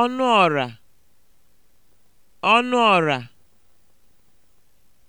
ọnụ ọra ọnụ ọra